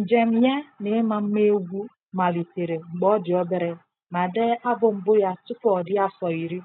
Njem ya ịma mma egwu malitere mgbe ọ dị obere ma dee abụ mbụ ya tupu ọ dị afọ iri.